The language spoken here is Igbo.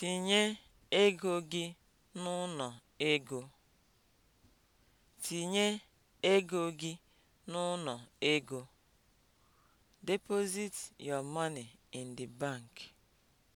Tinye ego gị n'uno ego. Tinye ego gị ego. Deposit your money in the bank.